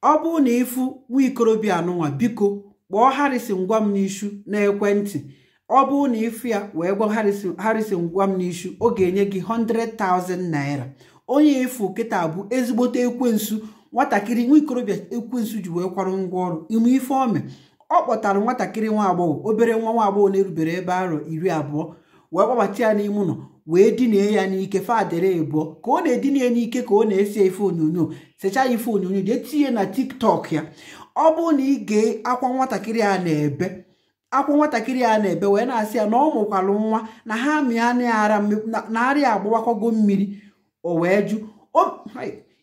ọ bụrụ na ịfụ nwa ikorobịa anụnwa biko kpọọ Harrison gwa m n'ishu n'ekwentị ọ bụrụ na ịfụ ya wee gwa Harrison gwa m n'ishu ọ ga-enye gị 100,000 naira onye ịfụ kịta bụ ezigbote ekwensu nwatakịrị nwa ikorobịa ekwensu ji wee kwarụ ngwa ọrụ ime ife ome ọ kpọtara nwatakịrị nwa agbọghọ obere nwa nwa agbọghọ na-erubere ebe arọ iri abụọ wee gbabata ya n'ime ụlọ wee dinie ya n'ike fadere ịbụọ ka ọ na-edina n'ike ka ọ na-ese ife onyonyo secha ya ife onyonyo jee tinye na tiktok ya ọ bụrụ na ị gee akwa nwatakịrị a na-ebe akwa nwatakịrị a na-ebe wee na-asị ya na ọ mụkwalụ nwa na ha mịanara na-arịa agbawakwago mmiri o wee jụ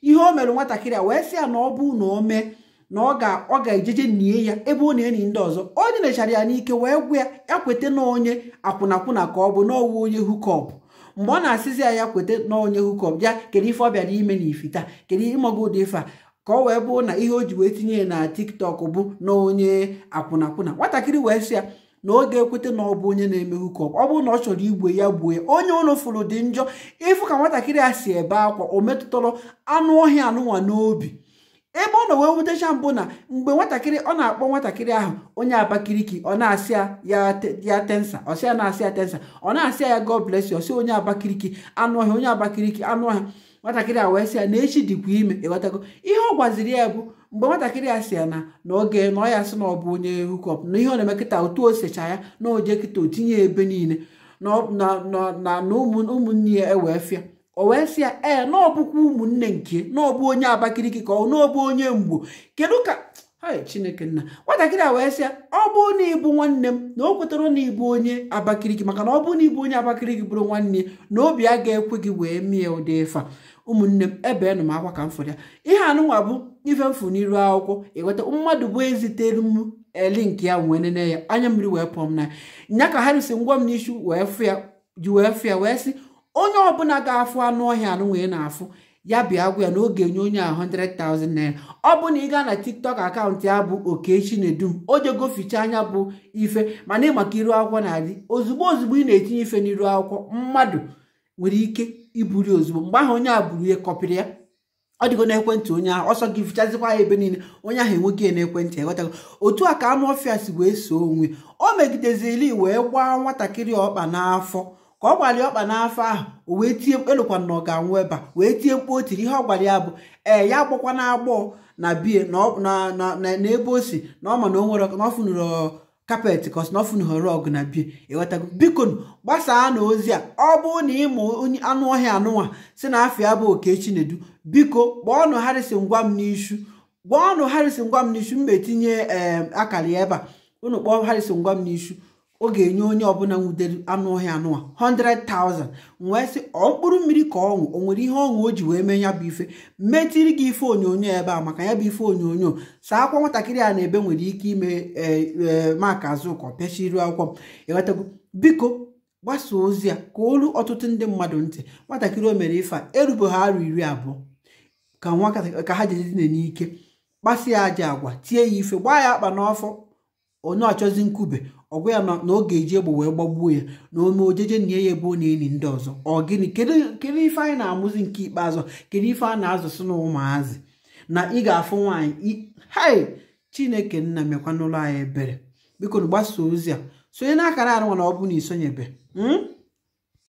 ihe o mere nwatakịrị a wee sị ya na ọ bụ na o mee na ọ ga-ejeje nie ya ebe ọ na enyi ndị ọzọ o nyerechara ya n'ike wee gwụ ya ya kweta na onye akwụnakwụna ka ọ bụ n'ọwụ onye hukọp mgbe ọ na-asịzi ya ya kweta na onye hukọp ya kedu ife ọ bịara ime na ifita kedu ịmọgụ ụdị ife ka ọ wee bụrụ na ihe o ji wee tinye na tiktok bụ na onye akwụnakwụna nwatakịrị wee sị ya na oge ga-ekweta na ọ bụ onye na-eme hukọp ọ bụrụ na ọ chọrọ igwe ya gbuo ya onye ụlọ fụrụ dị njọ ịfụ ka nwatakịrị a si ebe akwa o metụtara anụ ọhịa anụnwa n'obi ebe ọ nọ wee wutecha mbụ na mgbe nwatakịrị ọ na-akpọ nwatakịrị ahụ onye Abakaliki ọ na-asị ya tensa ọsị ya na-asị ya tensa ọ na-asị ya God bless you onye Abakaliki anụ ọhịa onye Abakaliki anụ ọhịa nwatakịrị a wee sị ya na echi dịkwa ime ịghọtago ihe ọ gwaziri ya bụ mgbe nwatakịrị ya sị ya na na oge na ọ ya sị na ọ bụ onye hukọp na ihe ọ na-eme kịta otu o secha ya na oje kịta o tinye ebe niile na ụmụnne ya ewee fịa o wee sị ya ee eh, na ụmụnne nke na onye abakiriki ka ọ na onye mgbu kedu ka chineke nna nwatakịrị a wee sị ya ọ bụ na ịbụ nwanne m na o kwetara na ịbụ onye abakiriki maka na ọ bụ na ịbụ onye abakiriki bụrụ nwanne ya na obi a ga-ekwe gị wee mie ụdị ịfa ụmụnne m ebe nụ m akwa ka m ya ihe anụnwa bụ ife mfụ n'iru akwụkwọ ịghọta mmadụ bụ ezitere m eli eh, ya wee nene ya anya mmiri wee pụọ m na ya ka ha risi ngwa m n'isi wee fụ ya ji wee fụ ya wee onye ọbụla ga-afụ anụ ọhịa anụ wee na-afụ ya bịa gwa ya na oge nye onye a 100,000 naira ọ bụ na ị gaa na tiktok akaụntụ ya bụ okechi nedum o jego ficha anya bụ ife mana maka iru akwụkwọ na-adị ozugbo ozugbo ị na-etinye ife n'iru akwụkwọ mmadụ nwere ike iburi ozugbo mgbe ahụ onye a buru ihe kọpịrị ya ọ dịgo n'ekwentị onye ahụ ọsọ gị fichazikwa ya ebe niile onye ahụ enweghị ya n'ekwentị eghọtago otu a ka anụ ọfịa si wee soo onwe o megidezili wee gbaa nwatakịrị ọkpa n'afọ ka ọ gbalịa ọkpa n'afọ ahụ o wee tie mkpelụkwa na ọ ga-anwụ ebe a wee tie mkpu o tiri ihe ọ ya bụ ee ya agbọkwa na agbọọ na bie na ebe o si na ọ ma na o nwere kapeti kọs kapet na ọ fụnụrụ ọgụ na bie ewetago biko gbasaa na ozi a ọ bụrụ na ịmụ onye anụ ọhịa anụnwa si na ya bụ oke chinedu biko kpọọnụ harịsị ngwa m n'ishu gbaọnụ harịsị ngwa m n'isu m etinye ee akara ya ebe a unu kpọọ harịsị ngwa m n'ishu ọ ga-enye onye ọbụla nwudere anụ ọhịa anụwa 100,000 wee sị ọ mkpụrụ mmiri ka ọṅụ o nwere ihe ọṅụ o ji wee mee ya bụ ife metiri gị ife onyonyo ebe a maka ya bụ ife onyonyo saa akwa nwatakịrị a na-ebe nwere ike ime ee maka azụkọ pịachiri akwụkwọ m enwetago biko gbasa ozi a ka olu ọtụtụ ndị mmadụ ntị nwatakịrị o mere ife a erube ha arụ iri abụọ ka nwa ka ha jedidine n'ike ya aja agwa tie ya ife gbaa ya akpa n'ọfọ onye ọchọzi nkwube ọgwa ya na ọ ga-eji egbo wee gbagbuo ya na ome ojeje na ya ebe ọ na-eni ndị ọzọ ọ gịnị kedu ife anyị na-amụzi nke ikpeazụ kedu ife a na-azụsị na ụmụazị na ị ga-afụ nwaanyị hai chineke nna mekwa n'ụlọ anyị ebere biko na gbasa ozi a sonye n'akara arụ na ọ bụ na isonyebe